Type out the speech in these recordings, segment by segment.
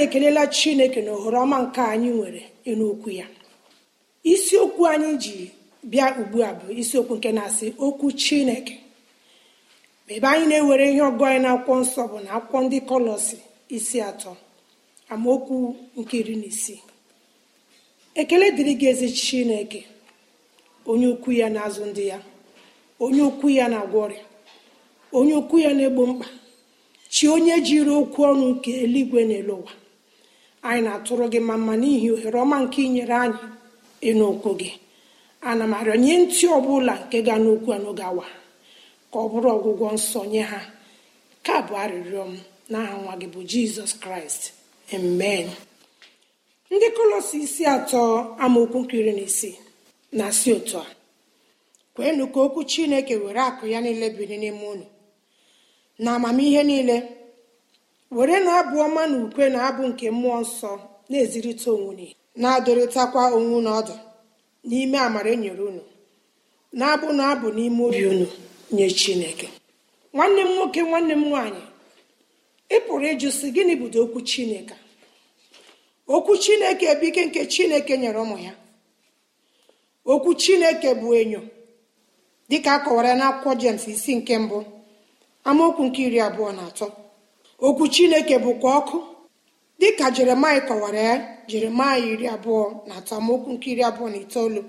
anyị ekelela chineke na ohere ọma nke anyị nwere n'okwu ya isiokwu anyị ji bịa ugbu a bụ isiokwu nke na-asị okwu chineke ebe anyị na-ewere ihe ọgụ anyị na akwụkwọ nsọ bụ na akwụkwọ ndị kọlọsi isi atọ amaokwu nke iri na isii ekele dịrị gị ezi chineke onye ukwu ya na-azụ ndị ya onye ukwu ya na-agwọ ọrịa onye ukwu ya na-egbo mkpa chi onye jiri okwu ọnụ nke eluigwe na ụwa anyị na-atụrụ gị ma mma n'ihi ohere ọma nke inyere anyị ịnụ okwu gị ana m arịọ nye ntị ọbụla nke ga n'okwu n'oge awa ka ọ bụrụ ọgwụgwọ nsọ nye ha ka bụ arịrịọ m n'aha nwa gị bụ jizọs kraịst amen ndị kolosi isi atọ amaokwu nkiri na isi na si otu a kweenụ ka okwu chineke were akụ ya niile biri n'ime unu na amamihe niile were na-abụ ọma na ukwe na abụ nke mmụọ nsọ na-ezirịta onwunye na-adọrịtakwa onwe na ọdụ n'ime amara enyere unu na-abụ na abụ n'ime obi unu nye chineke nwanne m nwoke nwanne m nwaanyị ị pụrụ ịjụ sị gịnị bido okwu chineke okwu chineke bụ ike nke chineke nyere ụmụ ya okwu chineke bụ enyo dịka a kọwara n'akwụkwọ jems isi nke mbụ amaokwu nke iri abụọ na atọ okwu chineke bụkwa ọkụ dịka jeremaya kọwara ya jeremaya iri abụọ na atọ nke iri abụọ na itoolu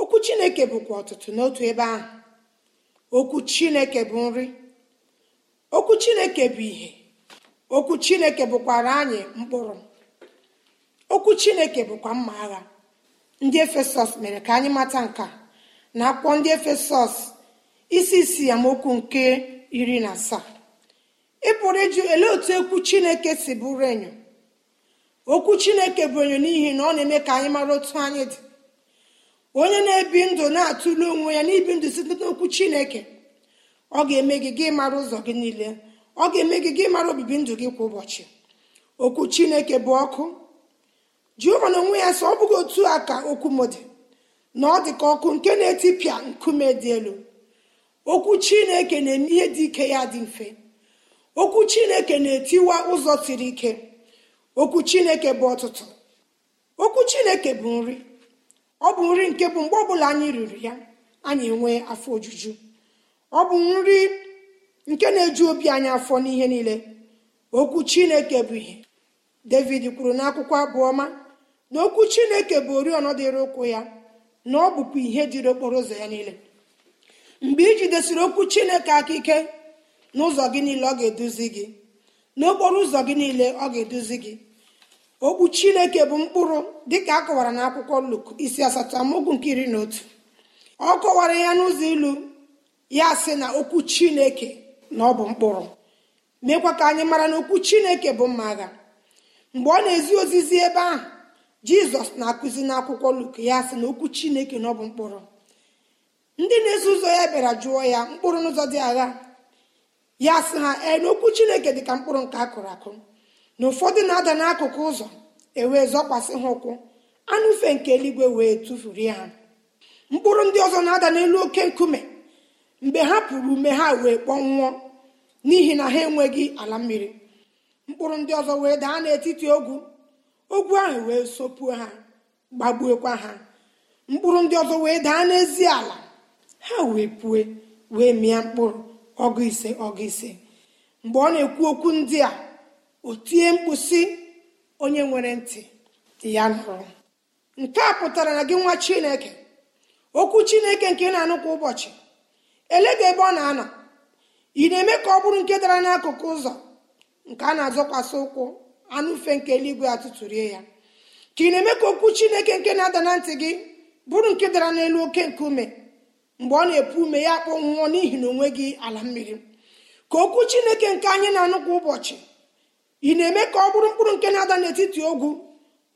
okwu chineke bụkwa ọtụtụ n'otu ebe ahụ okwu chineke bụ nri okwu chineke bụ ihe okwu chineke bụkwara anyị mkpụrụ okwu chineke bụkwa mma agha ndị efesọs mere ka anyị mata nka na akwụkwọ ndị efesọs isi isi amaokwu nke iri na asaa ị pụrụ ịjụ ele otu ekwu chineke si bụrụ enyo okwu chineke bụ enyo n'ihi na ọ na-eme ka anyị mara otu anyị dị onye na-ebi ndụ na-atụle onwe ya n'ibi ndụ site n'okwu chineke ọ ga-eme gị gị mara ụzọ gị niile ọ ga-eme gị gị mara obibi ndụ gị kwa ụbọchị okwu chineke bụ ọkụ jehova na onwe ya sọ ọ bụghị otu a ka okwu m dị na ọ dị ka ọkụ nke na-etipịa nkume dị elu okwu chineke na-eme ihe dị ike ya dị mfe okwu chineke na-etiwa ụzọ siri ike okwu chineke bụ ọtụtụ okwu chineke bụ nri ọ bụ nri nke bụ mgbe ọbụla anyị riri ya anyị enwee afọ ojuju ọ bụ nri nke na-eju obi anyị afọ n'ihe niile okwu chineke bụ ihe david kwuru n'akwụkwọ abụọma na okwu chineke bụ oriọna dịrị ụkwụ ya na ọ bụkwa ihe dịrị okporo ụzọ ya niile mgbe i jidesiri okwu chineke aka ike n'ụzọ gị niile ọ ga-eduzi gị n'okporo ụzọ gị niile ọ ga-eduzi gị okwu chineke bụ mkpụrụ dịka a kọwara na akwụkwọ luk isi asatọ amaokwu nke iri na otu ọ kọwara ya n'ụzọ ilu ya sị na okwu chineke na ọ bụ mkpụrụ meekwa ka anyị mara na okwu chineke bụ mma agha mgbe ọ na-ezi ozizi ebe ahụ jizọs na-akụzi n'akwụkwọ luk ya sị na okwu chineke na ọ bụ mkpụrụ ndị na-eso ụzọ ya bịara jụọ ya mkpụrụ n'ụzọ dị agha ya sị ha ee n'okwu chineke dị ka mkpụrụ nke akụrụ akụ na ụfọdụ na-ada n'akụkụ ụzọ ewee zọkwasị ha ụkwụ anụfe nke eluigwe wee tụfuru ya ha mkpụrụ ndị ọzọ na-ada n'elu oke nkume mgbe ha pụrụ ume ha wee kpọnwụọ n'ihi na ha enweghị ala mmiri mkpụrụ ndị ọzọ wee daa n'etiti ogwu ogwu ahụ wee sopuo ha gbagbuokwa ha mkpụrụ ndị ọzọ wee daa n'ezi ala ha wee pue wee mịa mkpụrụ ọgụ ise ọgụ ise mgbe ọ na-ekwu okwu ndị a o tie mkpụsị onye nwere ntị ya nụrụ nke a pụtara na gị nwa chineke okwu chineke nke na-anụ kwa ụbọchị elega ebe ọ na-anọ ị na-eme ka ọ bụrụ nke dara n'akụkụ ụzọ nke a na-azọkwasị ụkwụ anụfe nke eluigwe atụtụrie ya ka ị na-eme ka okwu chineke nke na-ada na ntị gị bụrụ nke dara n'elu oke nkume mgbe ọ na-epu ume ya akpọnwụọ n'ihi na onwe gị ala mmiri ka okwu chineke nke anyị na-anụ kwa ụbọchị ị na-eme ka ọ bụrụ mkpụrụ nke na-ada n'etiti ogwu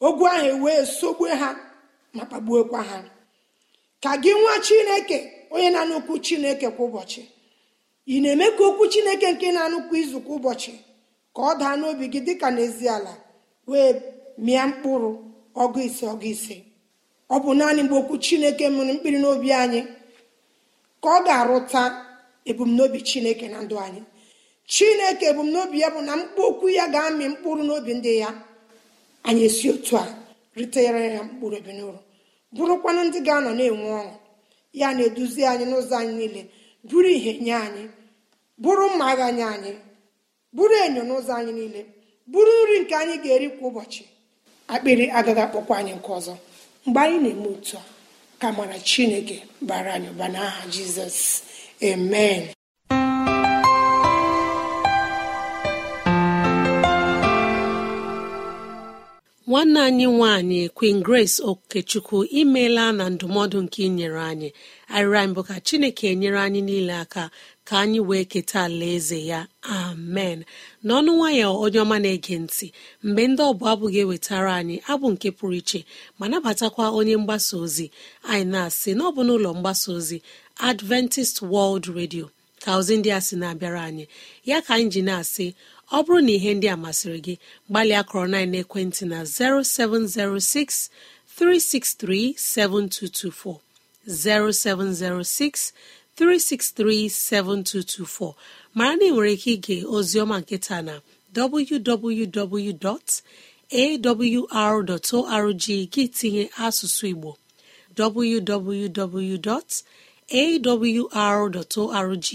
ogwu ahụ ewee sogbue ha ma kpagbuokwa ha ka gị nwa chineke onye na-anụ okwu chineke kwa ụbọchị ị na-eme ka okwu chineke nke na-anụkwu izu kwa ụbọchị ka ọ daa n'obi gị dịka n'ezi ala wee mịa mkpụrụ ọgụ ise ọgụ ise ọ bụ naanị mgbe okwu chineke mụrụ mkpiri n'obi anyị ka ọ ga-arụta ebumnobi chineke na ndụ anyị chineke ebumnobi ya bụ na mkpu okwu ya ga-amị mkpụrụ n'obi ndị ya anyị esi otu a ritere ya mkpụrụ ebi n'ụrụ bụrụkwanụ ndị ga-anọ na-enwe ọṅụ ya na-eduzi anyị n'ụzọ anyị niile bụrụ ihe nye anyị bụrụ mma agha nye anyị bụrụ enyo n'ụzọ anyị niile bụrụ nri nke anyị ga-eri kwa ụbọchị akpịrị agaghị akpọkwa anyị nke ọzọ mgbe anyị na-eme otu a ka mara chineke bara anyị ụba n'aha jizọs amen nwanne anyị nwanyị queen grace okechukwu imeela na ndụmọdụ nke inyere anyị anyị bụ ka chineke nyere anyị niile aka ka anyị wee keta alaeze ya amen n'ọnụ nwayọọ onye ọma na-ege ntị mgbe ndị ọbụ abụghị ewetara anyị abụ nke pụrụ iche ma nabatakwa onye mgbasa ozi anyị na-asị na ọ n'ụlọ mgbasa ozi adventist world radio ka ozi ndị a sị na-abịara anyị ya ka anyị ji na-asị ọ bụrụ na ihe ndị a masịrị gị gbalịa kọrọ na ekwentị na 0706 363 7224 0706 3637224 mara na ị nwere ike ige ozioma nketa na www.awr.org gị tinye asụsụ Igbo www.awr.org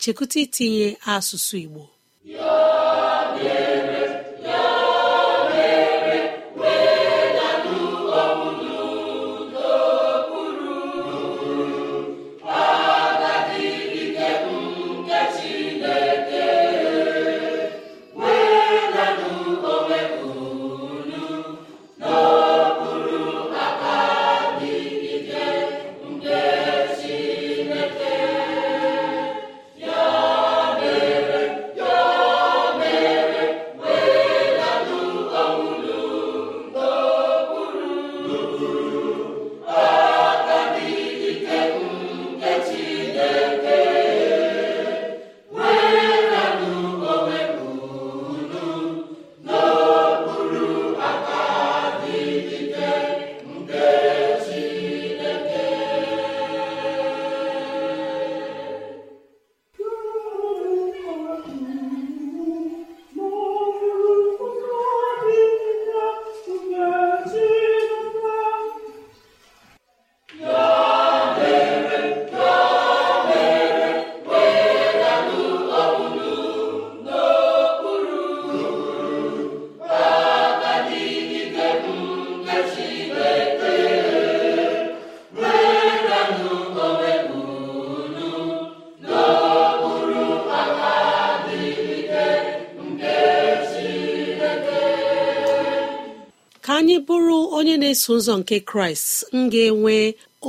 chekụta itinye asụsụ Igbo na ụzọ nke kraịst m ga-enwe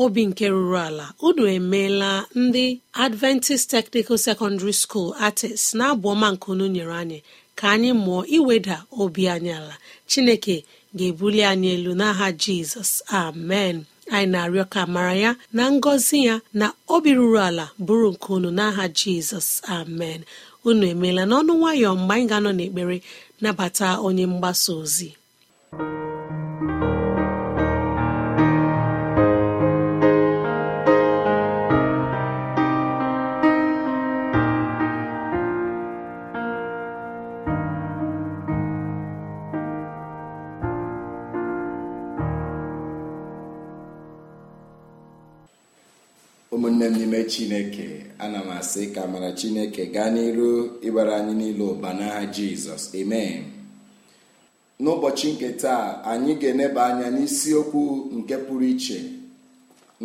obi nke ruru ala unu emeela ndị adventist technical secondary school artist na abụ ọma nke unu nyere anyị ka anyị mụọ iweda obi anyị ala chineke ga-ebuli anyị elu n'aha jizọs amen anyị na-arịọ ka mara ya na ngọzi ya na obi ruru ala bụrụ nke unu n'aha jizọs amen unu emeela n'ọnụ nwayọọ mgbe anyị ga-anọ n'ekpere nabata onye mgbasa ozi onye n'ime chineke ana m asị ka mara chineke gaa n'iru ịbara anyị niile ụba n'aha jizọs amen n'ụbọchị nke taa anyị ga-eneba anya n'isiokwu nke pụrụ iche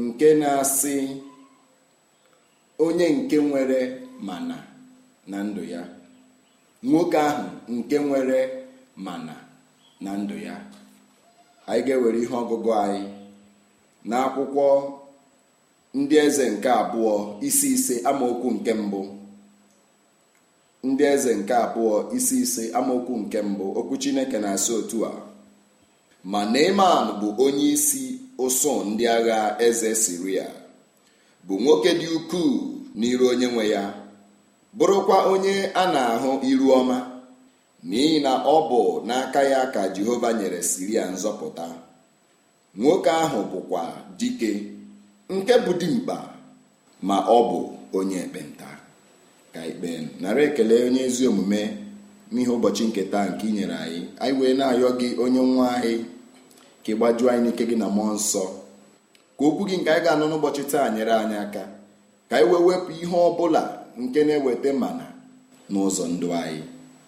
nke na-asị onye nke nwere mana na ndụ ya nwoke ahụ nke nwere mana na ndụ ya anyị ga-ewere ihe ọgụgụ anyị n'akwụkwọ ndị eze nke abụọ isi ise amaokwu nke mbụ ndị eze nke abụọ isi ise amaokwu nke mbụ okwu chineke na-asị otu a ma iman bụ onye isi ụsụ ndị agha eze siria bụ nwoke dị ukwuu n'iru onye nwe ya bụrụkwa onye a na-ahụ iru ọma n'ihi na ọ bụ n'aka ya ka jehova nyere siria nzọpụta nwoke ahụ bụkwa dike nke bụ dimkpa ma ọ bụ onye ekpenta ka ikpe nara ekele onye ezi omume n'ihe ụbọchị nke taa nke ị nyere anyị anyị wee na-ayọ gị onye nwa anyị ka ị gbajuo anyị n'ike gị na mmụọ nsọ ka okwu gị nke anyị ga-anụ n'ụbọchị taa nyere anyị aka ka anyị wee wepụ ihe ọ bụla nke na-eweta mana n'ụzọ ndụ anyị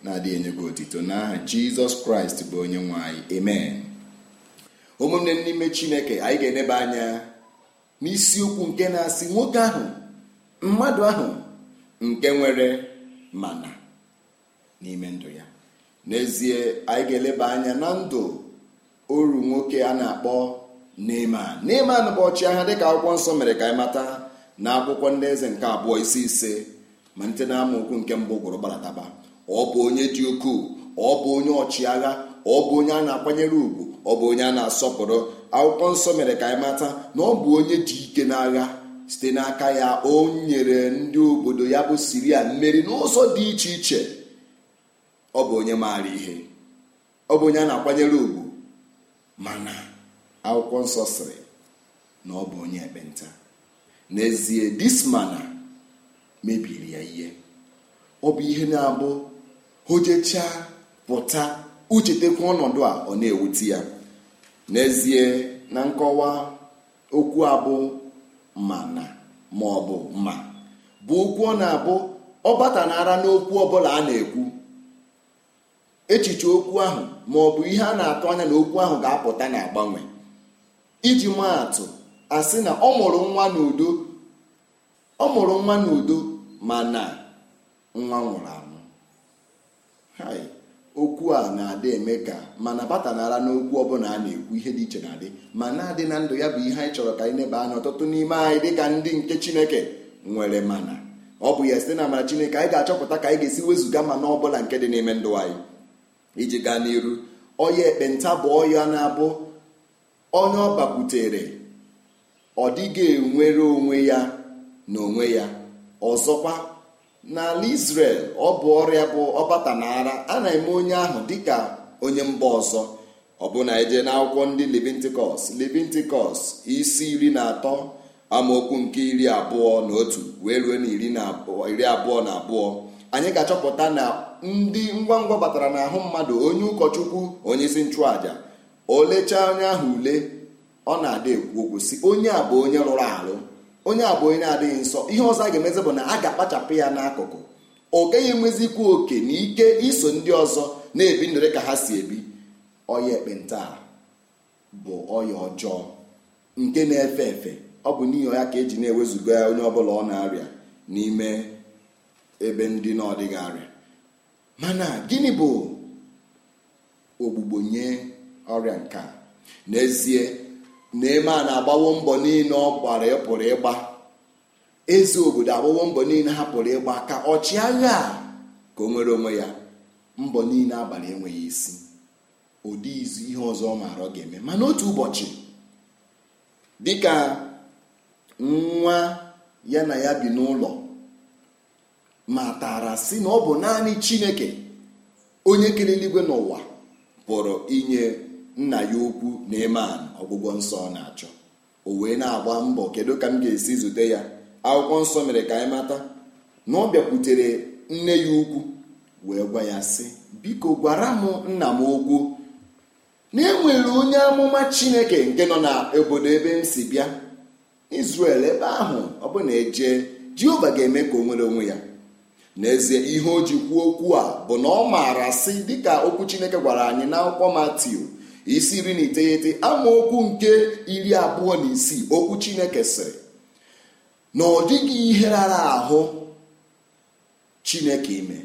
na-adịghị enye gị otito n'aha jizọs kraịst bụ onye nwe anyị amen ụmụnne n'ime chineke anyị ga-eneba anya isiokwu nke na-asị nwoke ahụ mmadụ ahụ nke nwere mana n'ime ndụ ya n'ezie anyị ga-eleba anya na ndụ oru nwoke a na-akpọ Neeman Neeman bụ ọchịagha dịka akwụkwọ nsọ mere ka anyị mata na akwụkwọ ndị eze nke abụọ isi ise ma nte na okwu nke mbụ gwụrụ gbarataba ọ bụ onye dị ukwuu ọ bụ onye ọchịagha ọ bụ onye a na-akwanyere ugwu ọ bụ onye a na-asọpụrụ akwụkwọ nsọ mere ka anyị mata na ọ bụ onye ji ike n'agha site n'aka ya o nyere ndị obodo ya bụ siria mmeri n'ụzọ dị iche iche ọ bụ onye maara ihe ọ bụ onye a na-akwanyere ugwu mana akwụkwọ nsọ siri na ọ bụ onye ekpenta n'ezie dismana mebiri ya ihe ọ bụ ihe na-abụ hojechaa pụta uchetekwa ọnọdụ a ọ na-ewute ya n'ezie na nkọwa okwu abụ ma na ma ọ bụ ma okwu ọ na-abụ ọ batanara n'okwu ọbụla a na-ekwu echiche okwu ahụ ma ọ ihe a na-atụ anya na okwu ahụ ga-apụta na agbanwe iji mma atụ asị na ọ mụrụ nwa n'udo ọ mụrụ nwa n'udo ma na nwa nwụrụ anwụ okwu a na-adị eme ka mana nara n'okwu ọbụla a na-ekwu ihe dị iche na-adị ma na-adị na ndụ ya bụ ihe anyị chọrọ ka anyị neba anya ọtụtụ n'ime anyị dịka ndị nke chineke nwere mana ọ bụ ya site na amara chineke anyị ga-achọpụta ka anyị ga-esi wezụga mana ọbụla nke dị n'ime ndụ anyị iji gaa n'iru ọya ekpenta bụ ọya na-abụ onye ọ bakwutere ọ dịghị enwere onwe ya na onwe ya ọzọkwa n'ala Israel ọ bụ ọrịa bụ ọbata na ara a na-eme onye ahụ dịka onye mba ọzọ na eje n'akwụkwọ ndị Leviticus Leviticus isi iri na atọ amaokwu nke iri abụọ na otu wee ruo na iri abụọ na abụọ anyị ga-achọpụta na ndị ngwa ngwa batara n'ahụ mmadụ onye ụkọchukwu onye isi nchụàja olechaa onye ahụ ule ọ na-ada ekwu okwu si onye a bụ onye rụrụ arụ onye a bụ onye na-adịghị nsọ ihe ọzọ a ga-emezi bụ na a ga-akpachapụ ya n'akụkụ ọ gaghị enwezikwa oke na ike iso ndị ọzọ na-ebi ndụ ka ha si ebi ọya ekpenta bụ ọya ọjọọ nke na-efe efe ọ bụ n'ihi ya ka eji na-ewezuga ya onye ọbụla ọ na-arịa n'ime ebe ndị na-ọdịghị arịa mana gịnị bụ ogbugbo nye ọrịa nke a n'ezie naeman agbawo mbọ niile ọ gbara e pụrụ ịgba eze obodo agbawo mbọ niile ha pụrụ ịgba ka ọchịagha ya ka o nwere onwe ya mbọ niile abalị enweghị isi ụdị izu ihe ọzọ ọ maara ọ ga-eme mana otu ụbọchị dịka nwa ya na ya bi n'ụlọ matara si na ọ bụ naanị chineke onye kere eluigwe n'ụwa pụrụ inye nna ya okwu na eman ọgwụgwọ nsọ ọ na-achọ o wee na-agba mbọ kedu ka m ga-esi zute ya akwụkwọ nsọ mere ka anyị mata na ọ bịakwutere nne ya ukwu wee gwa ya sị biko gwara m nna m okwu na enwere onye amụma chineke nke nọ na obodo ebe m si bịa Izrel ebe ahụ ọ bụ na eje Jehova ga-eme ka o nwere onwe ya n'ezie ihe o ji kwuo okwu a bụ na ọ maara sị dịka okwu chineke gwara anyị na akwụkwọ isi iri na iteghete amaokwu nke iri abụọ na isii okwu chineke sịrị na ọ dịghị ihe rara ahụ chineke ime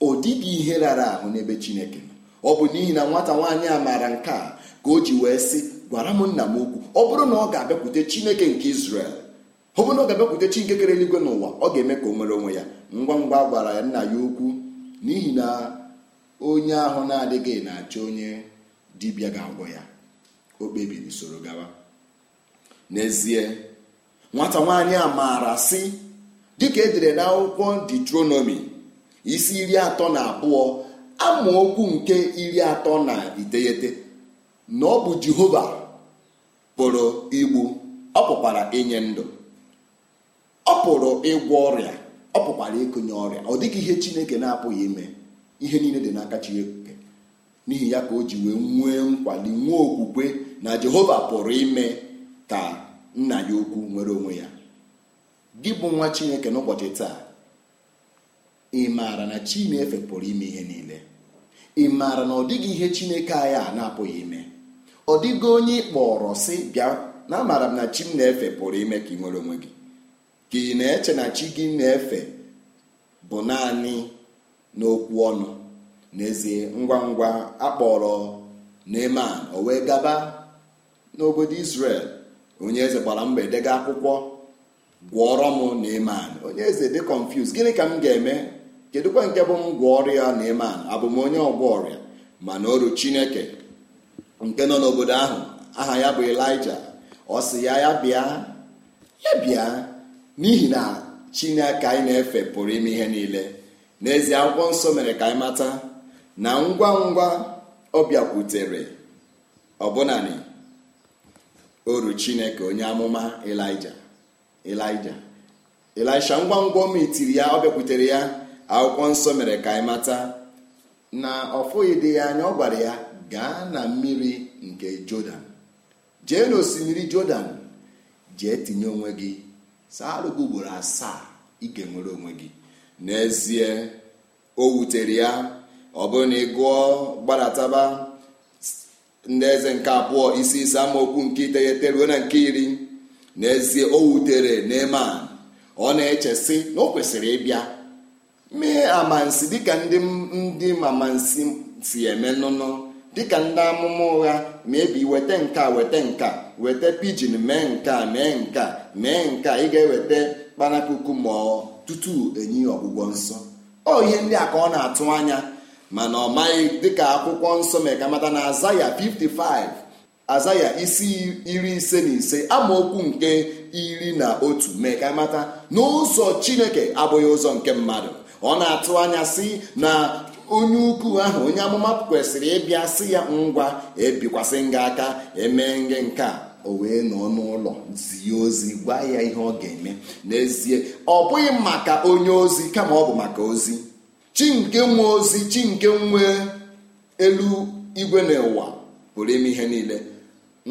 ọ dịghị ihe rara ahụ n'ebe chineke nọ ọ bụ n'ihi na nwata nwaanyị a maara nke a ka o ji wee sị gwara m nna m okwu ọ bụrụ na ọ ga-abịakwute chineke nke Izrel ọ bụrụ na ọ ga-abịakwute chineke kere eluigwe n'ụwa ọ ga-eme ka o nwere onwe ya ngwa ngwa gwara ya nna ya okwu n'ihi na onye ahụ na-adịghị na-achọ onye dibịa ga-agwọ ya o kpebiri soro gawa n'ezie nwata nwaanyị a maara sị dịka edere n'akwụkwọ detronomi isi iri atọ na abụọ okwu nke iri atọ na iteghete na ọ bụ jehova pụrụ igbu ọ pụkwara inye ndụ ọ pụrụ ịgwọ ọrịa ọ pụkwara ịkụnye ọrịa ọ dịghị ihe chineke na-apụghị ime ihe niile dị n'aka chineke n'ihi ya ka o ji wee nwee nkwali nwee okwukwe na jehova pụrụ ime ka nna ya ukwu nwere onwe ya gị bụ nwa chineke n'ụbọchị taa ị maara na chineke pụrụ ime ihe niile ị maara na ọ dịghị ihe chineke anyị a na-apụghị ime ọ dịghị onye ị kpọrọ sị bịa na amaara m na chi m na-efe pụrụ ime ka ị nwere onwe gị ka ị na-eche na chi gị na-efe bụ naanị n'okwu ọnụ n'ezie ngwa ngwa akpọrọ Neman o wee gaba n'obodo Israel onye eze gbara mgbe dega akwụkwọ gwọrọ m Neman onye eze dị confused gịnị ka m ga-eme kedụkwa nke bụ m gwọọrọ ya Neman abụ m onye ọgwọ ọrịa mana oru Chineke nke nọ n'obodo ahụ aha ya bụ Elija ọ sị ya ya bịa ya bịa n'ihi na Chineke anyị na-efe pụrụ ime ihe niile n'ezie akwụkwọ nsọ mere ka anyị mata na ngwa ngwa ọ bịakwutere ọbụnani oru chineke onye amụma elija elija elisha ngwa ngwa metiri ya ọ bịakwutere ya akwụkwọ nsọ mere ka anyị mata na ọfụghị dị ya anya ọ gwara ya gaa na mmiri nke jọdan jee n'osimiri jọdan jee tinye onwe gị saa ugboro asaa ike nwere onwe gị n'ezie o wutere ya ọ bụrụ na ị gụọ gbadataba ndị eze nke abụọ isi ise amaokwu nke iteghete ruo na nke iri n'ezie o wutere Neeman ọ na-echesi na o kwesịrị ịbịa mee amansi dịka ndị ndị mamansi si eme nnụnụ dịka ndị amụma ụgha mebi weta nka weta nka weta pijin mee nka mee nka mee nka ị ga-eweta kpanakuku ma tutu enyi ọgwụgwọ nsọ ọ ihe ndị a ka ọ na-atụ anya mana ọ maghị dịka akwụkwọ nsọ megamata na azaya 55 azaya isi iri ise na ise amaokwu nke iri na otu na n'ụzọ chineke abụghị ụzọ nke mmadụ ọ na-atụ anya si na onye ukwu ahụ onye amụma kwesịrị ịbịa sị ya ngwa ebikwasị nga aka emee nge nke o wee nọ n'ụlọ zie ozi gwa ya ihe ọ ga-eme n'ezie ọ bụghị maka onye ozi kama ọ bụ maka ozi chi nke nwa ozi chi nke nwe elu igwe n'ụwa pụrụ ime ihe niile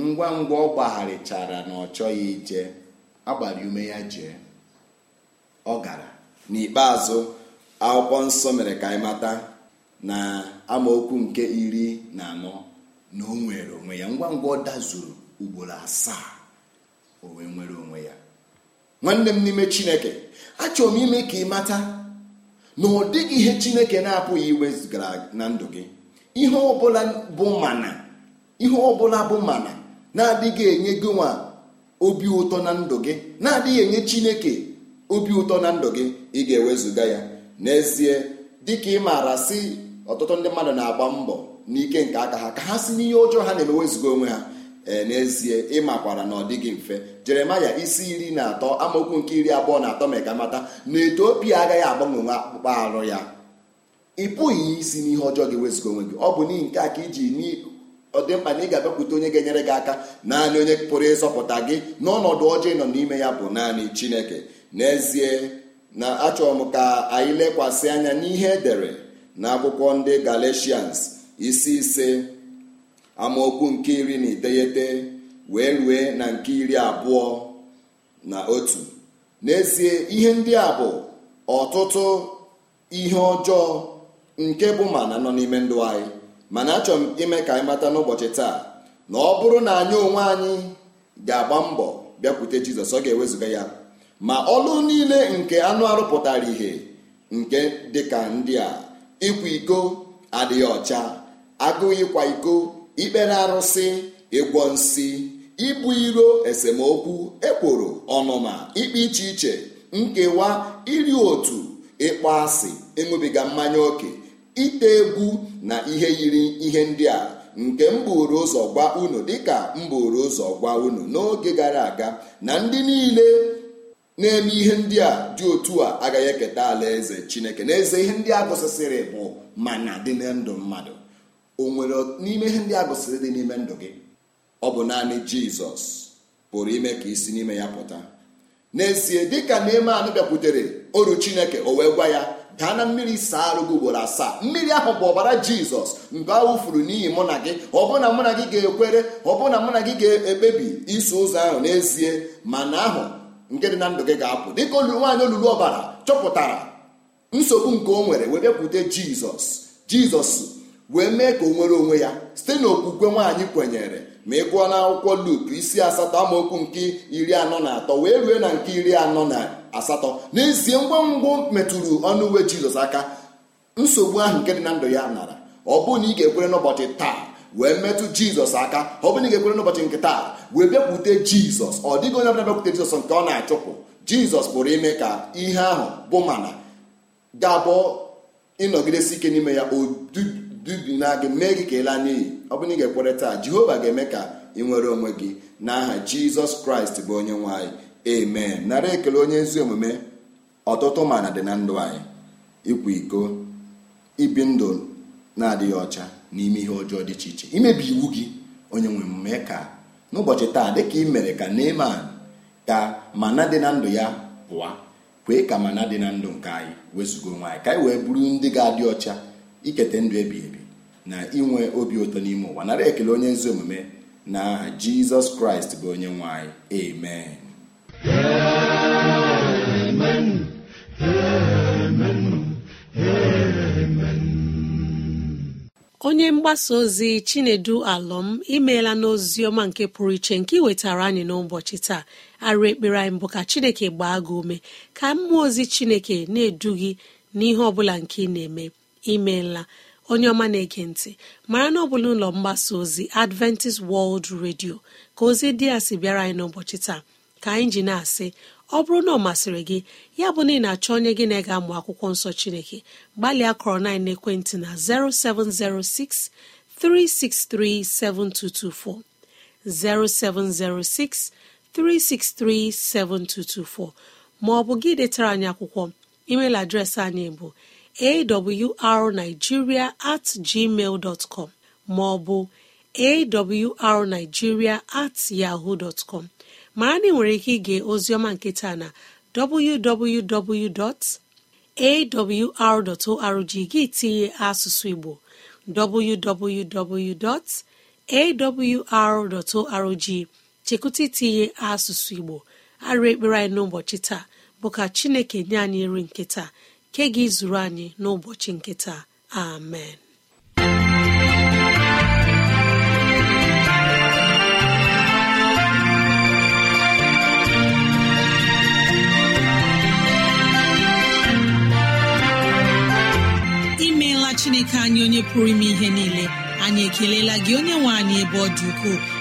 ngwa ngwa ọ gbagharịchara na ọ chọghị ije agbara ume ya jee ọ gara n'ikpeazụ akwụkwọ nsọ mere ka anyị mata na amaokwu nke iri na anọ na o nwere onwe ya ngwa ngwa ọ dazuru ugboro asaa o nwere onwe ya nwanne m n'ime chineke achọrọ m ime ka ị mata na ọ dịghị ihe chineke na-apụghị iwezụgara na ndụ gị ihe ọbụla bụ mana ihe ọbụla bụ mana na-adịghị enye gị nwa obi ụtọ na ndụ gị na-adịghị enye chineke obi ụtọ na ndụ gị ị ga-ewezụga ya n'ezie dịka ị maara si ọtụtụ ndị mmadụ na-agba mbọ n'ike nke aka ha ka ha si n'ihe ọjọọ ha na emewezuga onwe ha Eh, n'ezie ịmakwara na ọ dịghị mfe jeremaya isi iri na atọ amaokwu nke iri abụọ na atọ meka mata na etiopia agaghị agbanwe akpụkpọ arụ ya ị pụghị isi n'ihe ọjọọ gị wezụga onwe gị ọ bụ n'ihi nke a ka iji ọ dị mkpa na ị ga-abịakwute onye ga-enyere gị aka naanị onye pụrụ ịzọpụta gị n'ọnọdụ ọjọọ ị nọ n'ime ya bụ naanị chineke n'ezie na achọrọ m ka anyị lekwasị anya n'ihe edere na akwụkwọ ndị galatians isi ise amaokwu nke iri na iteghete wee rue na nke iri abụọ na otu n'ezie ihe ndị a bụ ọtụtụ ihe ọjọọ nke bụ mana nọ n'ime ndụ anyị mana achọrọ m ime ka anyị mata n'ụbọchị taa na ọ bụrụ na anyị onwe anyị ga-agba mbọ bịakwute jizọs ọ ga ewezuga ya ma ọlụ niile nke anụ arụpụtara ihe nke dịka ndị a ịkwa iko adịghị ọcha agụụ ịkwa iko ikpere arụsị ịgwọ nsị ibu iro esemokwu ekworo ọnụma ikpe iche iche nkewa iri otu ịkpọ asị ịṅụbiga mmanya oke ite egwu na ihe yiri ihe ndị a nke mba ụzọ gwa unu dịka mba ụzọ gwa unu n'oge gara aga na ndị niile na-eme ihe ndị a dị otu a agaghị eketa alaeze Chineke n'eze ihe ndị a gụsịsịrị bụ mana dị ndụ mmadụ o nwere n'ime ihe ndị a gụsịrị dị n'ime ndụ gị ọ bụ naanị jizọs pụrụ ime ka isi n'ime ya pụta n'ezie dịka anụ bịakwutere oru chineke o wee gwa ya daa na mmiri saa arụ gị ugboro asaa mmiri ahụ bụ ọbara jizọs mgbe a wụfuru n'ihi mụ na gị ọ bụ na mụ na gị ga-ekwere ọ bụ na mụ na gị ga-ekpebi iso ụzọ ahụ n'ezie mana ahụ nke dị na ndụ gị ga-apụ dịka olulu nwaanyị olulu ọbara chọpụtara nsogbu nke o nwere wee bịakwute jizọs jizọs wee mee ka o nwere onwe ya site n'okwukwe nwaanyị kwenyere ma ị gụọ na akwụkwọ Luk isi asatọ amaokwu nke iri anọ na atọ wee rue na nke iri anọ na asatọ n'ezie ngwa ngwa metụrụ ọnụ uwe Jizọs aka nsogbu ahụ nke dị na ndụ ya nara ọ na ị ga-ekwere n'ụbọchị taa wee metụ jizọs aka ọ bụrụ na ị ga-ekwere n'ụbọchị nke taa wee bịakwute jizọs ọ dịghị onye ọbụla bịakwute jizọs nke ọ na-achụpụ jizọs pụrụ ime ka ihe ahụ bụ mana ga ịnọgidesi ike n'ime ya dubina gị mee gị ka ị n'iyi ọ bụrụ na ị ga-ekwere taa jehova ga-eme ka ị nwere onwe gị n'aha jizọs kraịst bụ onye nwanyị emee amen nara ekele onye ezi omume ọtụtụ mana dị na ndụ anyị ịkwa iko ibi ndụ na-adịghị ọcha n'ime ihe ọjọọ dị iche iche imebi iwu gị onye nwe omume ka n'ụbọchị taa dịka ị mere ka neman ka mana dị na ndụ ya pụa kwee ka mana dị na ndụ nke anyị wezụga onwe anyị ka anyị wee bụrụ ndị ga-adị ọcha iketa ndụ ebi ebi na inwe obi ụtọ n'ime ụwa nara ekele onye ezi omume na aha jizọs kraịst bụ onye nwe anyị amen onye mgbasa ozi chinedu alọm imeela n'ozi ọma nke pụrụ iche nke wetara anyị n'ụbọchị taa arụ ekpere anyị mbụ ka chineke gbaa gị ume ka mmụọ ozi chineke na-edu gị n'ihe ọ bụla nke ị na-eme imeela onye ọma na-ege mara na ọ bụla ụlọ mgbasa ozi adventist world radio ka ozi dị ya si bịara anyị n'ụbọchị taa ka anyị ji na-asị ọ bụrụ na ọ masịrị gị ya bụ na ị na-achọ onye gị na ega amụ akwụkwọ nsọ chineke gbalịa kọrọ na ekwentị na 0706 363 7224 0706 363 7224 ma ọ bụ gị detara anyị akwụkwọ emeil adreesị anyị bụ awrnigeria at gmail dọtkọm maọbụ awrnigiria at yaho dọtkọm mara na ị nwere ike ige ozioma nketa na www.awr.org gị tinye asụsụ igbo www.awr.org chekwute itinye asụsụ igbo arụ ekpere anyị n'ụbọchị taa bụ ka chineke nye anyị nri nketa Nke gị zuru anyị n'ụbọchị nkịta. amen imeela chineke anyị onye pụrụ ime ihe niile anyị ekelela gị onye nwe anyị ebe ọ dị ukwuu.